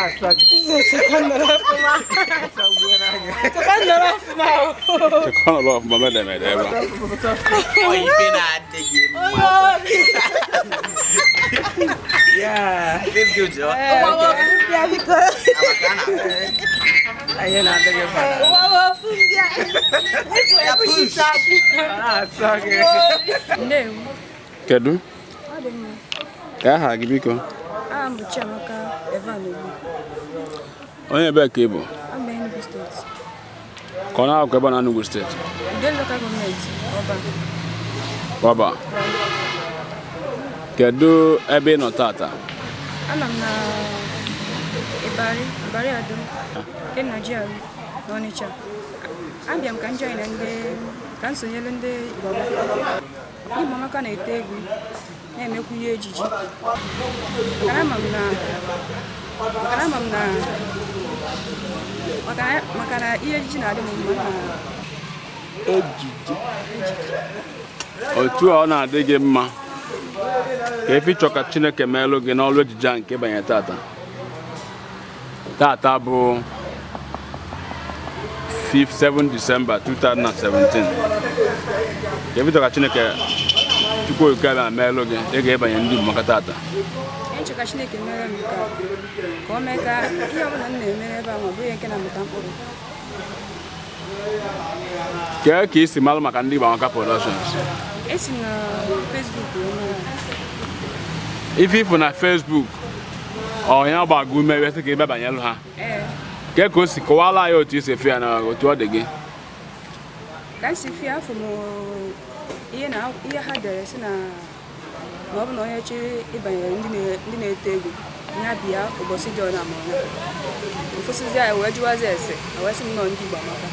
Subhanallah mama da mai da yawa. Oi fina da gemu. Yeah, this good job. Wawa fun biya biko. Ayo na da gemu. Wawa fun biya. This way push it Kedu? Ya ha gibiko. Onye ebe ka ị bụ? steeti. Ka na-akwụkwọ ebe na n'ugwu steeti? nde gọọmenti Ọba. Ọba. Kedu ebe ị nọ tata? Ana na nke nigeria na Abịa m ka m join ndị ka n'ime ọmaka na-ete egwu na-emekwu ihe ejiji maka na ihe ejiji na-adị m mma ejiji otu ọ na-adị gị mma ka efi chọ ka chineke meelụ gị n'ọrụ ejije a nke banye tata tata bụ 5 7 December 2017 ka ebido ka chineke tupu oke abịa meelụ gị ị ga-ebanye ndị igbo maka taata ka chineke mere m ka o mee ka ihe ọbụla m na-eme ebe a ma ọ bụghị nke na-amụta mkpụrụ kee ka isi malụ maka ndị esi na fesbuk ife ifụ na fesbuk onye ka ị bịa banyelụ ha kee ka o si kọwala ya otu isi efe ya na otu ọ dị gị dansifie afọ m ihe na ihe ha dere si na ma ọ bụ na onye chịrị ịbanyere ndị na-eto egwu ya bịa ụbọchị dị ọna ma ọnya ụfụsịzi anyị wee jụwazi ese wee sị m nọ ndị igbo amaka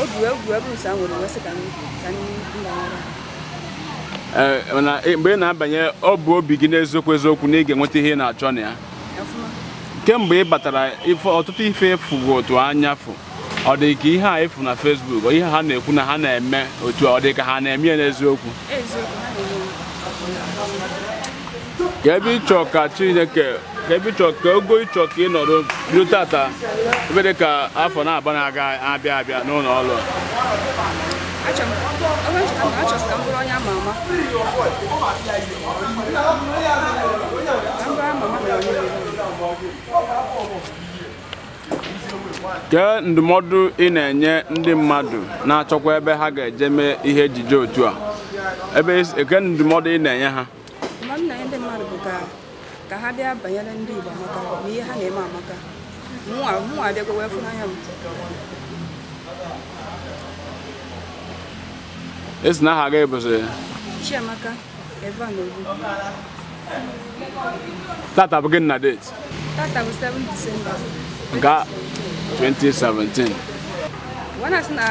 obi wee gwuo ebe ụsa nwere wee sị ka mbanyara e, e, mgbe ị na-abanye ọ bụ obi gị n'eziokwu eziokwu na ị ga-enweta ihe ị na-achọ na ya kemgbe ị batara ọtụtụ ife fugo otu anya fụ ọ dị ka ihe a efu na Facebook ihe ha na-ekwu na ha na-eme otu ọ dị ka ha na-eme ya n'eziokwu ka ebe ịchọ ka Chineke ka ebe ịchọ ka ogo ịchọ ka ị nọrọ tata ebe dị ka afọ na-aba na-aga abịa abịa n'ụlọ ọrụ Thank you. kee ndụmọdụ ị na-enye ndị mmadụ na-achọkwa ebe ha ga-eje mee ihe ejije otu a ebe eke ndụmọdụ ị na-enye ha ka ha bịa banyere ndị Igbo amaka ma ihe ha na-eme amaka mụnwa abịago wee n'anya m esi na aha gị bụsị Chiamaka Eva Evan Ogu tata bụ gị na date tata bụ 7 Disemba ga 2017. When I na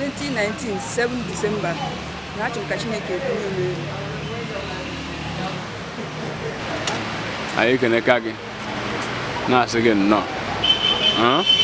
2019, 7 December, na achọ ka Chineke ekwunye m elu. Anyị keneka gị na-asị gị nnọọ.